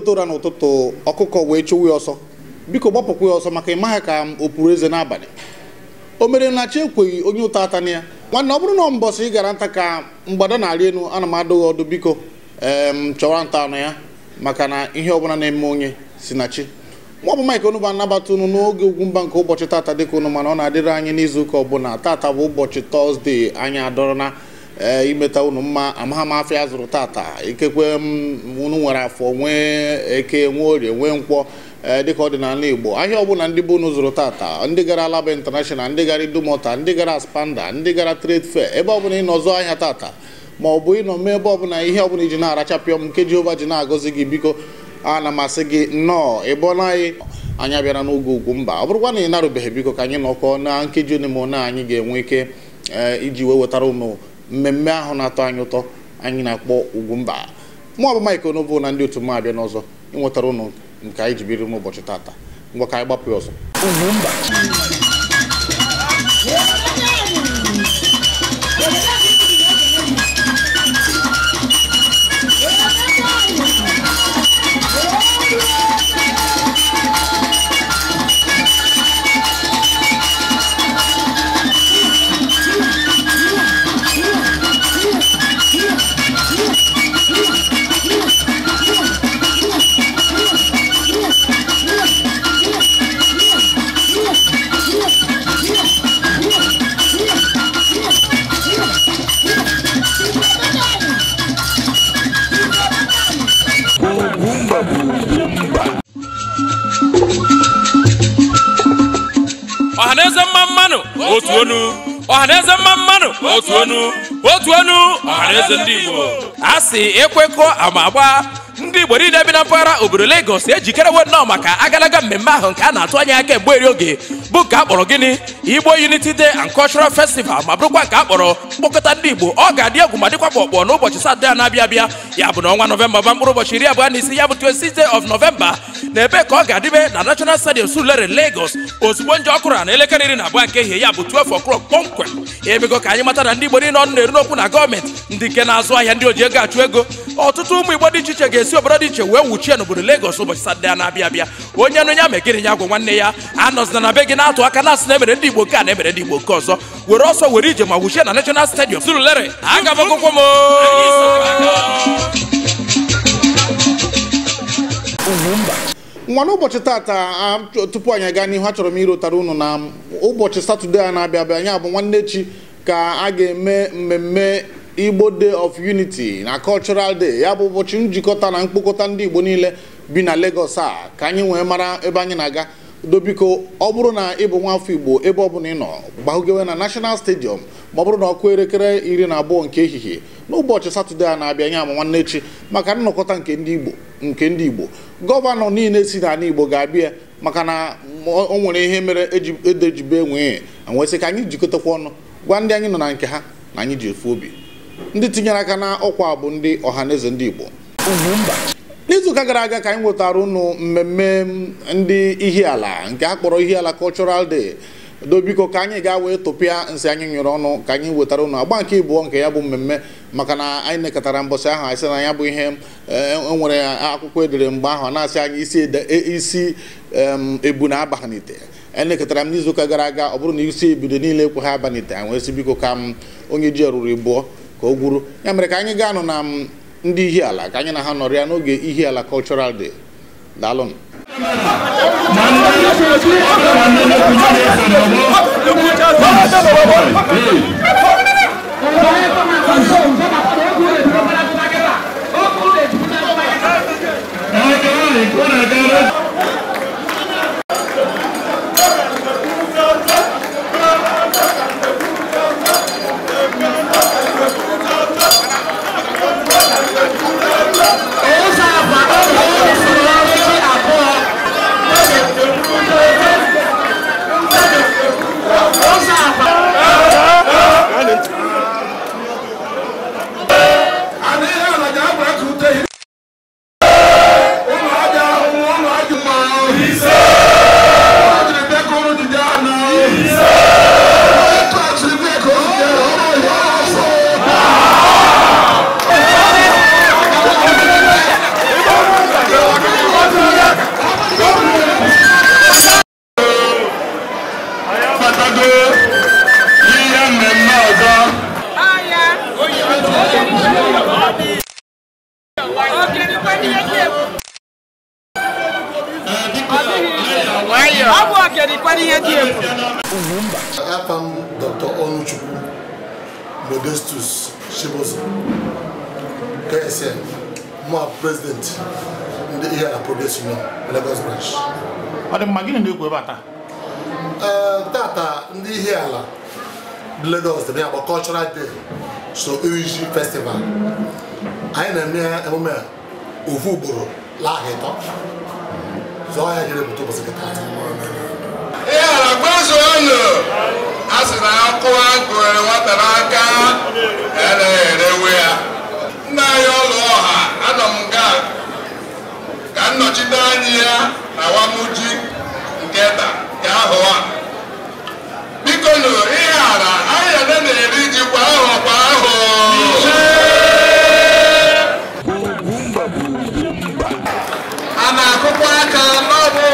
tụtụ ụra n'ụtụtụ ọkụkọ wee chụwa ọsọ biko gbapụkwa ya ọsọ maka ịmaghị ka m o pụrụ eze n'abalị o mere na chi ekweghị onye ụta ata na ya nwanne ọ bụrụ na mbọsị ị gara nta ka mgbada na-arị elu ana m adụghị ọdụ biko ee m chọwa nta anụ ya maka na ihe ọbụla na-eme onye si na chi nwa bụ Mike Onugbu anabata unu n'oge ugwu mba nke ụbọchị tata dịka unu mana ọ na-adịrị anyị n'izu ụka ọbụla tata bụ ụbọchị tọzdee anyị adọrọna Eh, imeta unu mma amahamafia zụrụ tata ikekwe mm, unu nwere afọ nwee eke nwee orie nwee nkwọ eh, dịka ọdịnala igbo ahịa ọbụla ndị bụ unu zụrụ tata ndị gara alaba international ndị gara idumota ndị gara spanda ndị gara trade fair ebe ọbụla ị nọzụ ahịa tata ma ọ bụ ịnọ mee ebe ọbụla ihe ọbụla iji na-arachapịọ m nke jehova ji na-agọzi gị biko a na masị gị nnọọ ịbụọna anyị anya bịara n'oge ugwu mba ọ bụrụkwa na ị narụbeghị biko ka anyị nọkọ na nkeji one ma one anyị ga-enwe ike eh, iji wee wetara ụnụ mmemme ahụ na-atọ anyị ụtọ anyị na-akpọ ugwu mụ ọ bụ Mike na ndị otu mma abịa n'ọzọ ịnwetara ụnụ nke anyị jibiri m ụbọchị tata ngwa ka anyị gbapụ ọzọ mba. ọhaneze mmanụ otu onu otu ọhaneze ndị Igbo a si ekwekọ ama ndị Igbo niile bi na mpaghara obodo Lagos ejikerewo nnọọ maka agalaga mmemme ahụ nke a na-atụ anya kemgbe eri oge bụ ka a kpọrọ gịnị Igbo Unity Day and Cultural Festival ma bụrụkwa nke a mkpokọta ndị Igbo ọ ga-adị egwu ma dịkwa kpọkpọ n'ụbọchị Satọde a na-abịa abịa ya bụ na ọnwa Nọvemba ba mkpụrụ ụbọchị iri abụọ na isi ya bụ 26 of November na ebe ka ọ ga-adịbe na National Stadium Surulere Lagos ozugbo nje ọkụrụ na elekere iri na abụọ nke ehihie ya bụ 12 o'clock kpọmkwem emego ka anyị mata na ndị Igbo niile ọnụ na-eru n'okwu na gọọmenti ndị nke na-azụ ahịa ndị oji ego achụ ego ọtụtụ ụmụ Igbo dị iche iche ga-esi obodo dị iche wee nwuchie n'obodo Lagos ụbọchị Satọde a na-abịa abịa onye nụ ya megịrị ya gwụ nwanne ya anọzina na be gị na-atụ aka na-asị na emere ndị Igbo nke a na emere ndị Igbo nke ọzọ were ọsọ were ije ma wuchie na National stadium Surulere aga m akwụkwọ nwa n'ụbọchị tata tupu anyị aga n'ihu achọrọ m irotara unu na ụbọchị satọde a na-abịa abịa anyị abụ nwanne chi ka a ga-eme mmemme Igbo Day of Unity na Cultural Day ya bụ ụbọchị njikọta na mkpokọta ndị Igbo niile bi na Lagos a ka anyị wee mara ebe anyị na-aga dobiko ọ bụrụ na ị bụ igbo ebe ọbụla ị nọ gbahụgewe na nashonal stadiọm ma ọ bụrụ na ọkụ elekere iri na abụọ nke ehihie n'ụbọchị satọde a na-abịa nye ama nwanne echi maka nnọkọta nke ndị igbo nke ndị igbo gọvanọ niile si n'ala igbo ga-abịa maka na o nwere ihe mere edejibe e enwee anwesị ka anyị jikọtakwa ọnụ gwa ndị anyị nọ na nke ha na anyị ji efu obi ndị tinyere aka na ọkwa bụ ndị ọha na ndị igbo n'izuụka gara aga ka anyị nwetara ụnụ mmemme ndị Ihiala nke a kpọrọ Ihiala Cultural Day dobiko ka anyị gaa wee tụpịa nsị anyị nyụrụ ọnụ ka anyị wetara ụnụ agba nke ịbụọ nke ya bụ mmemme maka na anyị nekọtara mbọsị ahụ anyị sị na ya bụ ihe enwere eh, e akwụkwọ edere mgbe ahụ na-asị anyị isi e, isi ebu na aba n'ite elekọtara m n'izuụka gara aga ọ bụrụ na isi ebido niile ekwe ha abanite anyị wee sị biko ka m onye ji ruru ịbụọ ka o gwuru ya mere ka anyị gaa nụ na ndị Ihiala ka anyị na ha nọrịa n'oge Ihiala cultural day daalụnụ Thank you. Yeah. ọ dị mma gịnị na-ekwu ebe a eh, ndị ihe ala Lagos dị ya bụ cultural day so Iriji festival anyị na-eme emume ofu ugboro laha ịtọ zụọ ya jere bute ụbọchị kịta ihe ala gbazo ọnụ a sị na akụwa gụnyere nwata n'aka anaghị e erewe ya nna anyị ọlụ ọha anọ m nga ka nnọchite anyị ya na wamuji nke ta ahụ a. biko nụ ihe ara ahịa na-eri ji kwa ahụ kwa ahụ a na-akụkwa aka n'ọbụ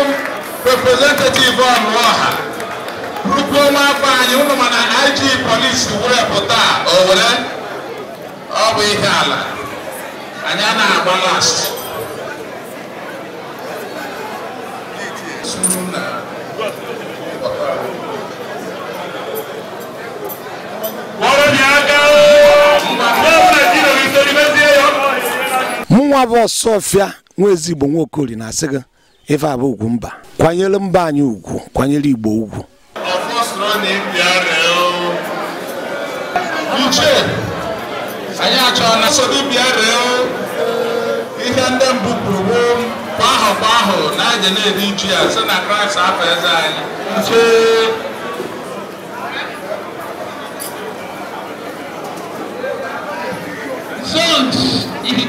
representative ọnụọha rukwuo nwafọ anyị ụlọ mana IG polisi were pụta owere ọ bụ ihe ala anyị a na-agba last nwa bụ ọsọfịa nwa ezigbo nwaokori na-asị gị ife abụ ugwu mba kwanyere mba anyị ugwu kwanyere igbo ugwu uche anyị achọrọ na sodo bịa ree ihe ndị mbụ kwuru mgbe ahụkwa ahụ na aja na-eri ya sị na kraịst afọ eze anyị ihe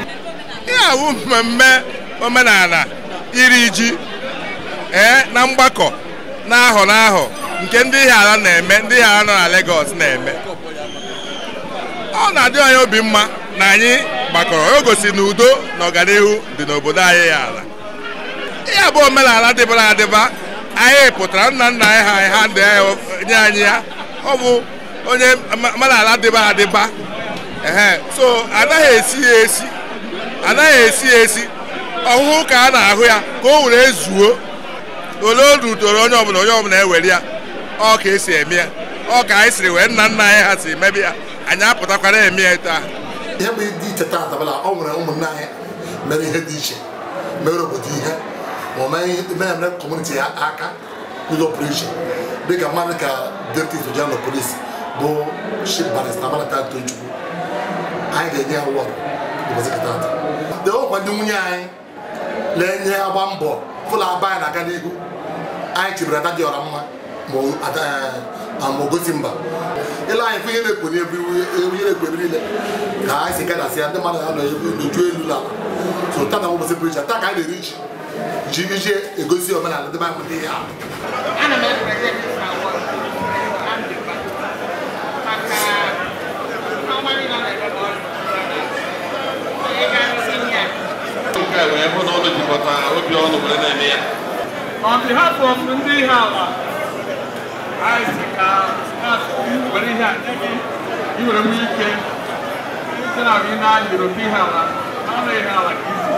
awụ mmemme omenala iri ji ee eh, na mgbakọ na ahọ na ahọ nke ndị ala na-eme ndị ala nọ na legos na-eme ọ na-adị anyị obi mma na anyị gbakọrọ o gosi na udo na ọganihu dị n'obodo anyị ya ala ya bụ omenala dịbara adịba anyị pụtara nna nna anyị ha ha ndị nye anyị ya ọ bụ onye omenala dịba adịba ee so anaghị esi ya esi anaghị esi ya esi ọhụhụ ka a na-ahụ ya ka o were zuo ole odu toro onye ọbụla onye ọbụla ewere ya ọ ka esi eme ya ọ ka anyị siri wee nna nna anyị ha si emebe ya anyị apụtakwara eme ya taa ihe bụ dị iche taa dabala ọ nwere ụmụnna anyị mere ihe dị iche mere obodo ihe ma ọ maghị ihe na-emere kọmuniti aka n'ụzọ pụrụ dịka mmadụ ka deputy general of police bụ chief barrister de anyị ga-enye ka wọd de ọkwa nwunye anyị na-enye agba mbọ fụla aba anyị na-aga n'ihu anyị chebere ada dị ọra mma ma ogosi mba ele anyị fụ ihe na-ekwo ka anyị si gadasị ya ndị mmadụ ya elu n'ala so taa na ụbọchị pụrụ iche taa ka ji iji egosi omenala debe akpụta ihe ahụ a hụ na ọnụ jikọta obi ọnụ were na-eme ya on behalf of ndị ihe ala were ihe a nye gị iwere nwee sị na na European ihe ala na ihe ala ka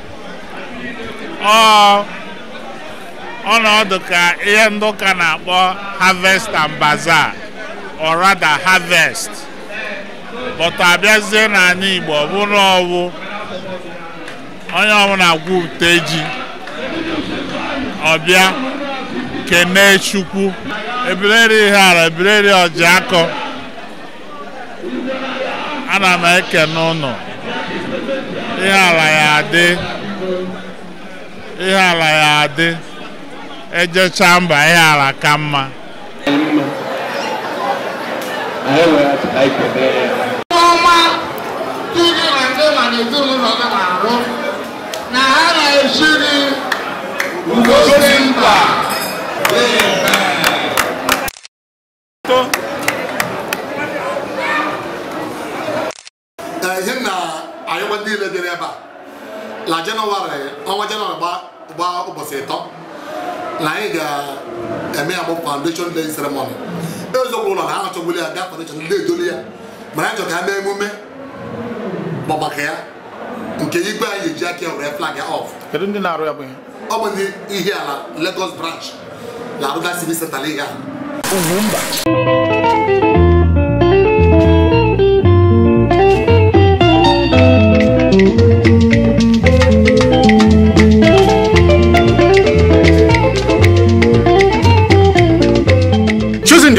ọ ọnọdụ ka ihe ndị ụka na-akpọ harvest and bazaar or rather harvest but abịazie n'ala Igbo ọ bụrụ ọwụ onye ọbụla gwupụta ji ọbịa kene Chukwu ebireri ihe ala ebireri ọji akọ ana m ekene ụnụ ihe ala ya adị ihe ala ya adị ejechaa mba ihe ala ka mma ọma ndị gị na ndị na ezinụlọ gị na-arụ na ha na-esiri ugozi mba ihe na anyịwa niile dịrị ebe a na jenụwarị ọnwa jenụwarị gbaa gba ụbọchị ịtọ na anyị e ga-eme ya bụ foundation day ceremony eziokwu ụlọ na ha ya bịa foundation ndị edoli ya mana anyị chọrọ ka ha mee emume ọgbakọ ya nke igwe anyị eji aka were flag ya off ọ bụ ihe ala Lagos branch na-arụgasị civil center ihe a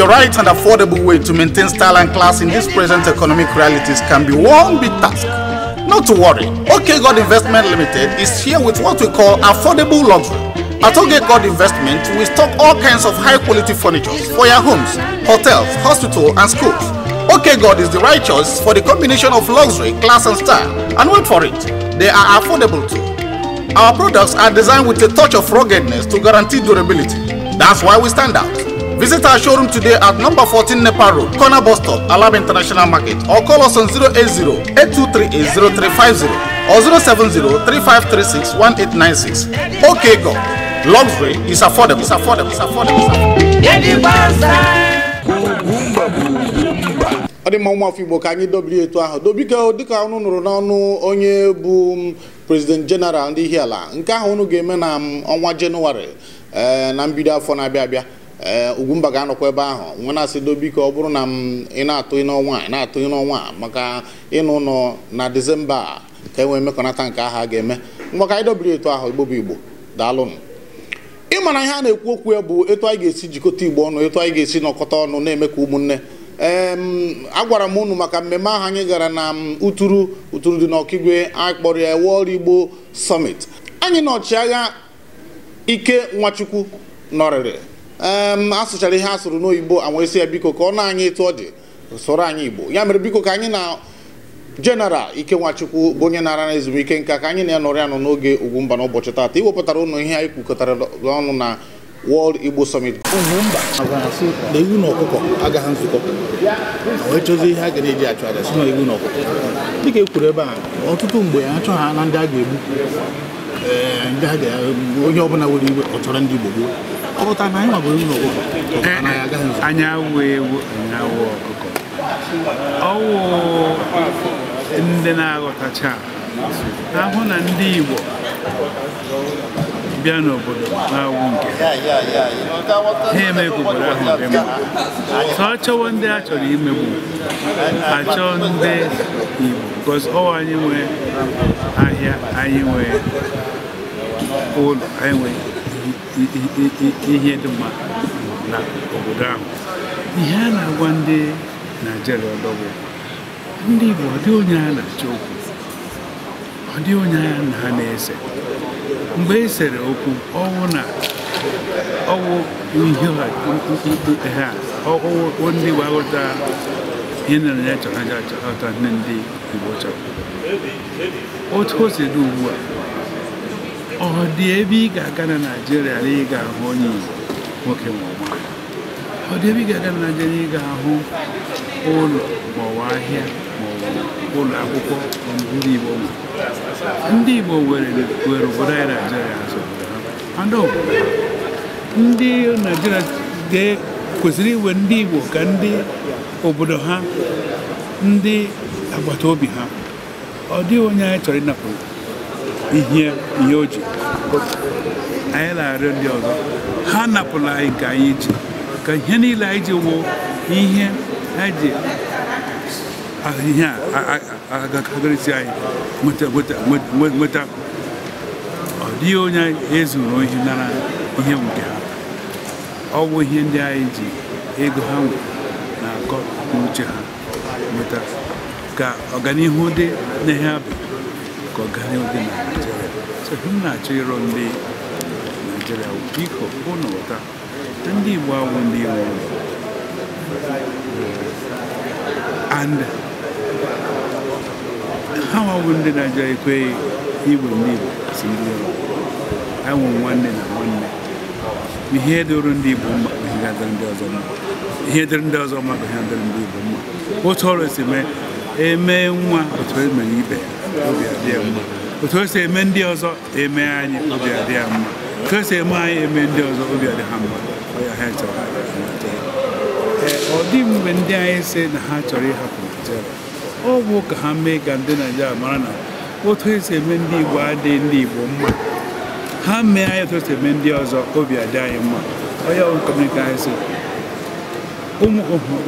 the right and affordable way to maintain style and class in these present economic realities can be one big task. Not to worry, OK God Investment Limited is here with what we call affordable luxury. At OK God Investment, we stock all kinds of high quality furniture for your homes, hotels, hospitals, and schools. OK God is the right choice for the combination of luxury, class, and style. And wait for it, they are affordable too. Our products are designed with a touch of ruggedness to guarantee durability. That's why we stand out. Visit our showroom today at number 14 Nepal Road, corner bus stop, Alab International Market, or call us on 080 8238 or 070 3536 1896. Okay, go. Luxury is affordable. It's affordable. It's affordable. It's affordable. ọ dị mma nwa afọ igbo ka anyị dobiri etu ahụ dobike dịka ọnụ nụrụ n'ọnụ onye bụ prezident jeneral ndị Ihiala nke ahụ unu ga-eme na ọnwa jenụwarị na mbido afọ na-abịa abịa Eh, ugwumba ga-anọkwa ebe ahụ nwe na-asị dobiko ọ bụrụ na m ị na-atụ n'ọnwa ị na-atụ n'ọnwa maka ịnụ ụlọ na disemba ka e nwee mmekọnata nke agha ga-eme mgbaka anyị dobiri etu ahụ igbo bụ igbo daalụnụ ị ihe a na-ekwu okwu ya bụ etu anyị ga-esi jikọta igbo ọnụ etu anyị ga-esi nọkọta ọnụ na-eme ka ụmụnne ee agwara m unu maka mmemme ahụ anyị gara na uturu uturu dị n'ọkigwe akpọrọ ya World Igbo Summit anyị na ọchịagha Ike Nwachukwu nọrịrị asụchara ihe asụrụ n'oyibo anwa esi ya biko ka ọ na anyị etu ọ dị sụrụ anyị igbo ya mere biko ka anyị na jeneral nwachukwu bụ onye na nara na ezumike nka ka anyị na-anọrị anọ n'oge ugwumba n'ụbọchị taata iwepụtara ụnụ ihe anyị kwukọtara ọnụ na wọld Igbo Summit ugwumba na ewu na ọkụkọ agaghị nzukọ wee chọzie ihe a ga na-eji achụ aja si na ewu na ọkụkọ dịka e kwuru ebe a ọtụtụ mgbe achọ ha na ndị a ga-egbu onye ọbụla nwere iwe ọ chọrọ ndị Igbo gboo ọpụta na anyị nwagburu ụlọ anyị awụ ewu anyị awụ ọkụkọ ọwụ ndị na-aghọtacha ahụ na ndị Igbo bịa n'obodo na-awụ nke ha obodo ahụ dị mma ka chọwa ndị a chọrọ imegbu achọ ndị Igbo because ọ anyị nwee ahịa anyị nwee ụlọ anyị nwee ihe dị mma na obodo ahụ ihe a na-agwa ndị naijiria ọdọbụ ndị Igbo ọ dị onye a na-achọ okwu ọ dị onye a na ha na-ese mgbe e sere okwu ọwụ na ọwụ ihe ha ọwụ ndị gbaghọta ihe nere ya chọrọ aja chọrọta ndị Igbo chọrọ otu o si dị ugbu a ọ dị ebe ị ga-aga na naijiria na ị ga-ahụ onye Igbo nwoke ma ọ ọ dị ebe ị ga-aga na Naịjirịa ị ga-ahụ ụlọ maọbụ ahịa maọbụ ụlọ akwụkwọ ndị Igbo ndị Igbo were obodo anyị Naịjirịa azụ oh, ndị Naịjirịa kwesịrị iwe ndị Igbo ka ndị obodo ha ndị agbata obi ha ọ dịghị onye anyị chọrọ ịnapụrụ ihe ihe o ji anyị na-arịọ ndị ọzọ ha napụla anyị ka anyị ji ka ihe niile anyị ji wụ ihe anyị ji ihe agakarịsị anyị nweta ọ dịghị onye ezuru ihe nara ihe nke ha ọ bụ ihe ndị anyị ji ego ha nwere na-akọ n'uche ha nweta ka ọganihu dị na ihe abụ ka ọganihu dị na m na-achọ ịrọ ndị naijiria biko hụ na ụta ndị igbo awụ ndị nwụrụ and ha nwawụ ndị naijiria ekweghị igwe ndị igbo si ndị ụlọ anwụ nwanne na nwanne ihe dịrụ ndị igbo mma bụ ihe dịrị ndị ọzọ mma ihe dịrị ndị ọzọ mma bụ ihe dịrị ndị igbo mma otu ọrụ si mee emee nwa otu emere ibe ya obi adịghị mma otu o si eme ndị ọzọ eme anyị obi adị ya mma otu o si eme anyị eme ndị ọzọ obi adị ha mma ọ dị mgbe ndị anyị si na ha chọrọ ịhapụ Naịjirịa ọ bụ ka ha mee ka ndị Naịjirịa mara na otu esi eme ndị Igbo adịghị ndị Igbo mma ha mee anyị otu esi eme ndị ọzọ obi adị anyị mma onye anyị si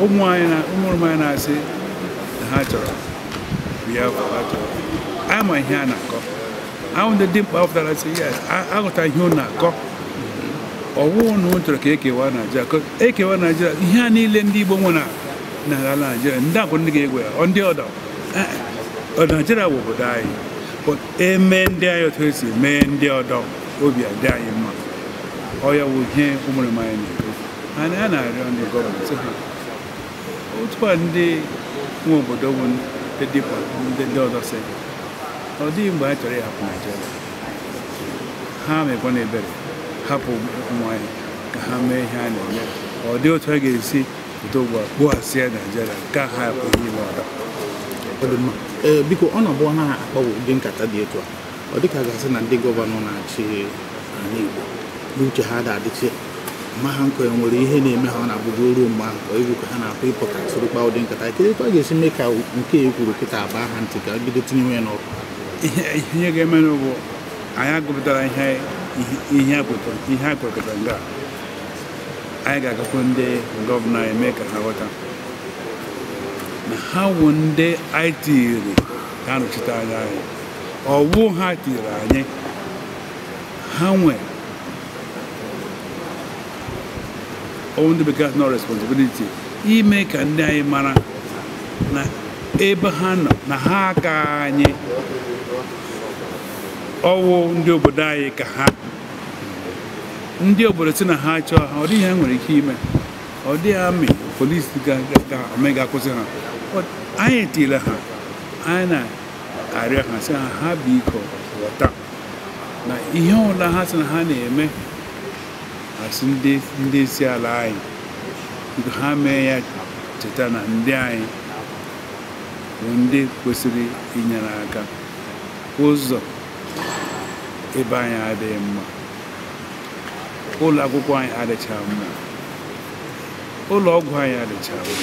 ụmụ anyị na-asị na ha chọrọ Biafra ha chọrọ ama ihe a na-akọ ahụ ndị dimkpa ọ si, sị ya aghọta ihe ọ na-akọ ọwụụ na chọrọ ka ekewa Naijiria ekewa Naijiria ihe a niile ndị Igbo nwe na ala Naijiria ndị akwụ ndị ga-egwe ya ọ ndị ọdọ. Naijiria bụ obodo anyị eme ndị anyị otu esi mee ndị ọdọ obi adị anyị mma ọya wụ ihe ụmụrụma anyị na-ekwu a na-arịọ ndị gọọmenti ha otu a ndị nwe obodo bụ ndị dịkwa ndị ọ dịghị mgbe anyị chọrọ ịhapụ Naịjirịa ha na ebere hapụ ụmụ anyị ka ha mee ihe a na-eme ọ dị otu a ga-esi pụta ugbu a kpụghasịa Naịjirịa ka ha apụghị ime ọda biko ọ na-abụ ha akpọwo ụdị nkata dị etu a ọ dịka gasị na ndị gọvanọ na-achị ala Igbo n'uche ha da-adịchi ma ha nkọ nwere ihe na-eme ha ọ na-abụgo ruo mgbe ahụ ka egwu ka ha na-akpọ ịpụta soro ụdị nkata kedụ etu a ga-esi mee ka nke e kwuru kịta abaa ha ntị ka bido tinyewe ya n'ọkụ ihe ga-eme n'ugwu anyị gụpụtara ihe a kwekọtara nga anyị ga-agakwu ndị gọvanọ eme ka ha ghọta na ha wụ ndị anyị tiri ha nọchiteanya nọchite anya anyị ọwụ ha tiri anyị ha nwe ndị bekee nọ responsibility ime ka ndị anyị mara na ebe ha nọ na ha aka anyị ọwụ ndị obodo anyị ka ha ndị obodo si na ha chọọ ha ọ dịghị ha nwere ike ime ọ dịghị amị polisi ga omega akwụsị ha anyị tiile ha anyị na-arịọ ha sị ha ha bụ iko ghọta na ihe ọla ha sị na ha na-eme asị ndị isi ala anyị ha mee ya cheta na ndị anyị bụ ndị kwesịrị inyere aka ụzọ ebe anyị adịghị mma ụlọ akwụkwọ anyị adịcha mma ụlọ ọgwụ anyị adịcha mma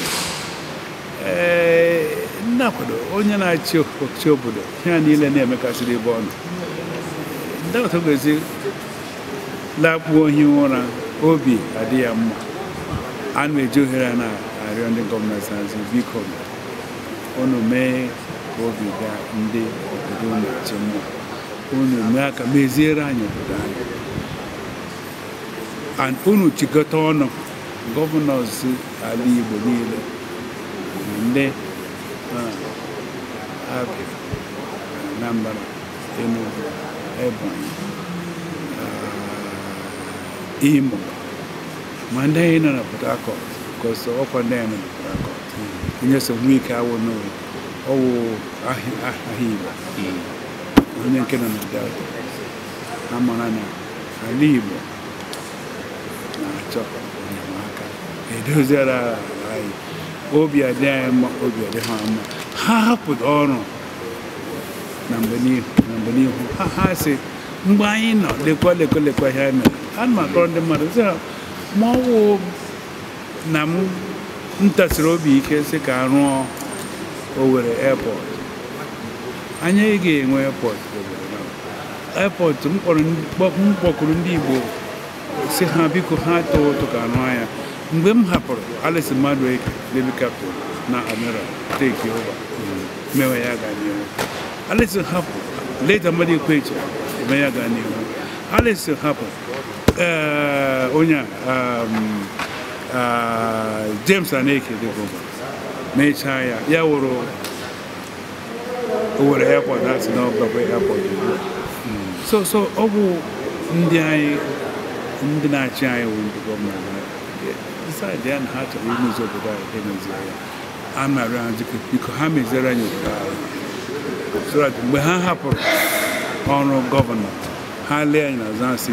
ee nnakwado onye na-achị ọchịchị obodo ya niile na-emekasịrị ebe ọnụ ndapụta gozi lakpuo ohi ụra obi adị ya mma a na-eji ohere na-arịọ ndị gọọmenti azụ biko unu mee ka obi gaa ndị obodo unu eti mma unu mee ka meziere anyị obodo anyị and unu chịkọta ọnụ gọvanọs ala Igbo niile ndị Abia Anambra Enugu Ebonyi uh, Imo ma ndị anyị nọ na Port Harcourt because ọkwa ndị anyị nọ na Port Harcourt onye sogbu ike owo ọwụ ahịa Igbo onye nke nọ na delta amara na ala ibu na-achọ enyemaka e aka anyị obi adị anyị obi ade ha ama ha hapụ ọrụ na mgbe n'ihu ha ha si mgbe anyị nọ lekwa lekwa lekwa ihe anyị mere ana m akọrọ ndị mmadụ sị ha ma ọ wụ na m ntasiri obi ike si ka rụọ Owerri airport anyị ga-enwe airport airport m kpọkụrụ ndị Igbo si ha biko ha tọọ ụtọ ka rụọ ya mgbe m hapụrụ Alice Madueke Navy Captain na Admiral take over mewe ya gaa n'ihu Alice hapụ leta mmadụ ekwecha eme ya gaa n'ihu Alice hapụ eh, onye a um, Uh, James Aneke dịbụba mechaa ya ya wụrụ Owerri airport asị na ọbụlakwa airport hmm. so so ọ bụ ndị anyị ndị na-achị anyị wụ ndị gọọmenti decide ya na ha chọrọ imezi obodo anyị emezie ya a narị anyị biko ha meziere anyị obodo anyị so that mgbe ha hapụrụ ọrụ gọvanọ ha lee anyị na azụ asị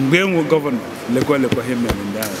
mgbe enwe gọvanọ lekwa lekwa ha mere ndị anyị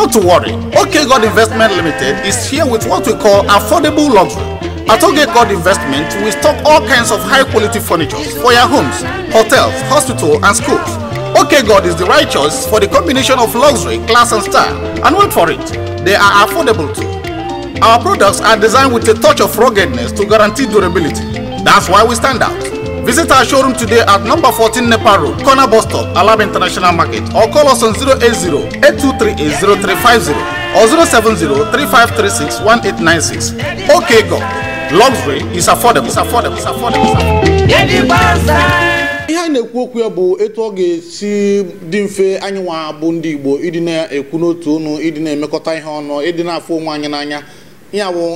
Not to worry, OK God Investment Limited is here with what we call affordable luxury. At OK God Investment, we stock all kinds of high quality furniture for your homes, hotels, hospitals, and schools. OK God is the right choice for the combination of luxury, class, and style. And wait for it, they are affordable too. Our products are designed with a touch of ruggedness to guarantee durability. That's why we stand out. Visit our showroom today at number fourteen Nepal Road, corner bus stop, Alab International Market, or call us on 080 8238 or eight 3536 1896. Okay, go. Luxury is affordable. It's affordable. It's affordable. It's affordable. ihe anyị na-ekwu okwu ya bụ etu ọ ga-esi dị mfe anyị nwa bụ ndị Igbo ịdị na-ekwu n'otu ọnụ ịdị na-emekọta ihe ọnụ ịdị na-afụ onwe anyị n'anya ya wụ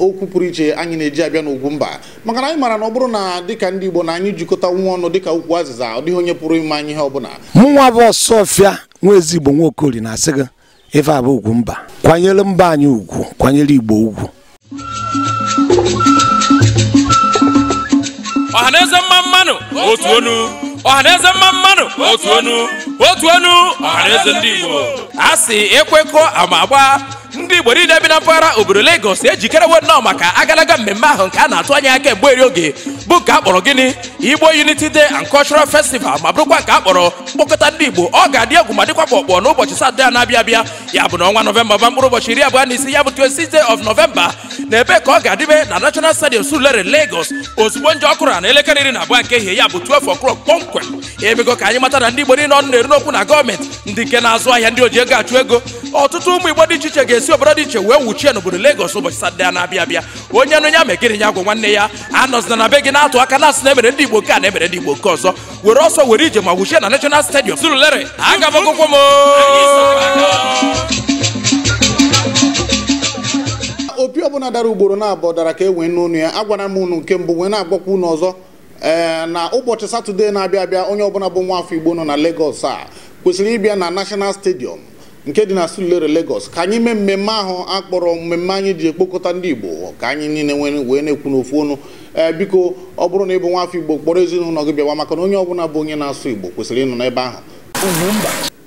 okwu pụrụ iche anyị na-eji abịa mba maka na anyị mara na ọ bụrụ na dịka ndị Igbo na anyị jikọta nwa ọnụ dịka ukwu azịza ọ dịghị onye pụrụ ime anyị ihe bụla mụnwa bụ ọsọfịa nwa ezigbo nwaokori na-asị gị ife ugwu mba, kwanyere mba anyị ugwu kwanyere Igbo ugwu ọhaneze mma mmanụ otu onu ọhaneze mma mmanụ otu onu otu onu ọhaneze ndị Igbo a sị ekwekọ ama agba ndị igbo niile bi na mpaghara obodo Lagos ejikerewo nnọọ maka agalaga mmemme ahụ nke a na-atụ anya ya kemgbe eri oge bụ nke a kpọrọ gịnị Igbo Unity Day and Cultural Festival ma bụrụkwa nke a kpọrọ mkpọkọta ndị Igbo ọ ga-adị egwu ma dịkwa kpọkpọ n'ụbọchị Satọde a na-abịa abịa ya bụ na ọnwa Nọvemba ba mkpụrụ ụbọchị iri abụọ na isi ya bụ 26 day of November na ebe ka ọ ga-adịbe na National Stadium Surulere Lagos ozugbo nje ọkụrụ na elekere iri na abụọ nke ehihie ya bụ 12 o'clock kpọmkwem emego ka anyị mata na ndị Igbo niile ọnụ na-eru n'okwu na gọọmenti ndị nke na-azụ ahịa ndị oji ego achụ ego ọtụtụ ụmụ Igbo dị iche iche ga-esi si obodo dị iche wee nwuchie n'obodo Lagos ụbọchị Satọde na-abịa abịa onye nụ ya megịrị ya gwụ nwanne ya anọzina na be gị na-atụ aka na asị e na emere ndị Igbo nke a na emere ndị Igbo nke ọzọ were ọsọ were ije ma wuchie na National Stadium Surulere aga m akwụkwọ m opi ọbụla dara ugboro na-abụọ dara ka e wee n'ụnụ ya agwara m ụnụ nke mbụ wee na agbakwa ụnụ ọzọ ee na ụbọchị satọde na-abịa abịa onye ọbụla bụ nwa afọ igbo nọ na Lagos a kwesịrị ịbịa na National stadiọm nke dị na silulere Lagos ka anyị mee mmemme ahụ akpọrọ mmemme anyị ji ekpokọta ndị Igbo ka anyị niile wee na-ekwu n'ofu ọnụ ee biko ọ bụrụ na ịbụ bụ nwafọ Igbo kpọrọ ezinụlọ gị bịawa maka na onye ọbụla bụ onye na-asụ Igbo kwesịrị ịnọ n'ebe ahụ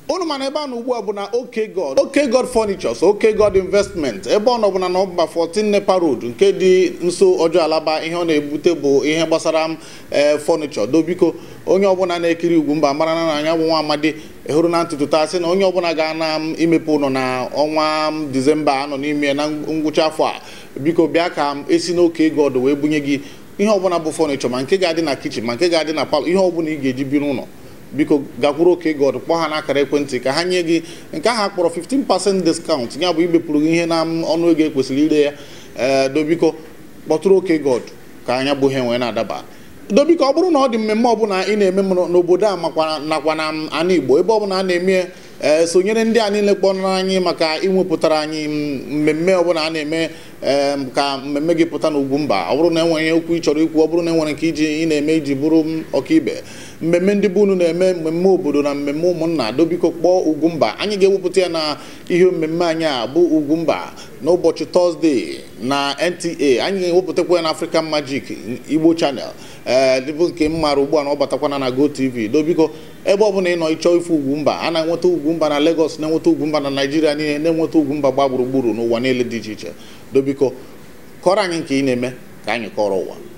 unu mana ebe a na ugbu a bụ na oke god oke god furnitures oke god investment ebe ọ nọbụla na ọba 14 nepa road nke dị nso ọjọọ alaba ihe ọ na-ebute bụ ihe gbasara ee fọnichọ dobiko onye ọbụla na-ekiri ugwu mba mara na anya bụ nwa amadi hụrụ na ntụtụ taa sị na onye ọbụla ga na m imepe ụlọ na ọnwa disemba anọ n'ime na ngwụcha afọ a biko bịa ka m esi n'oke god wee bunye gị ihe ọbụla bụ fọnichọ ma nke ga-adị na kichin ma nke ga-adị na palọ ihe ọbụla ị ga-eji bi n'ụlọ biko gakwuru oke god kpọọ ha n'akara ekwentị ka ha nye gị nke ahụ akpọrọ 15% discount ya bụ ibepụrụ gị ihe na ọnụ ego ekwesịrị ire ya ee eh, dobiko kpọtụrụ oke god ka anya bụ ihe enwe na-adaba dobiko ọ bụrụ na ọ dị mmemme ọbụla ị na-eme n'obodo a makwa nakwa na ana igbo ebe ọbụla a na-eme ee eh, sonyere ndị a niile kpọrọ anyị maka ịnwepụtara anyị mmemme ọbụla a na-eme eh, ka mmemme gị pụta n'ugwu mba ọ bụrụ na enwere okwu ị chọrọ ikwu ọ bụrụ na enwere nke iji ị na-eme iji bụrụ ọkaibe mmemme ndị be unu na-eme mmemme obodo na mmemme ụmụnna dobiko kpọọ Ugwumba anyị ga-ewepụta ya na ihe mmemme anyị a bụ Ugwumba n'ụbọchị tọzdee na NTA anyị ga-ewepụtakwa ya na African Magic Igbo Channel ee eh, dịbụ nke m ugbu a na ọ batakwana na GoTV dobiko ebe ọ bụla ị nọ ịchọ ife Ugwumba a na-enweta Ugwumba na Lagos na-enweta Ugwumba na Naịjirịa niile na-enweta Ugwumba gba gburugburu n'ụwa niile dị iche iche dobiko kọrọ anyị nke ị na-eme ka anyị kọrọ ụwa